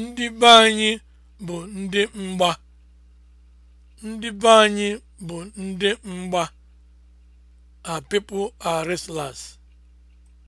Ndị be anyị bụ ndị mgba. Ndị be anyị bụ ndị mgba. a people are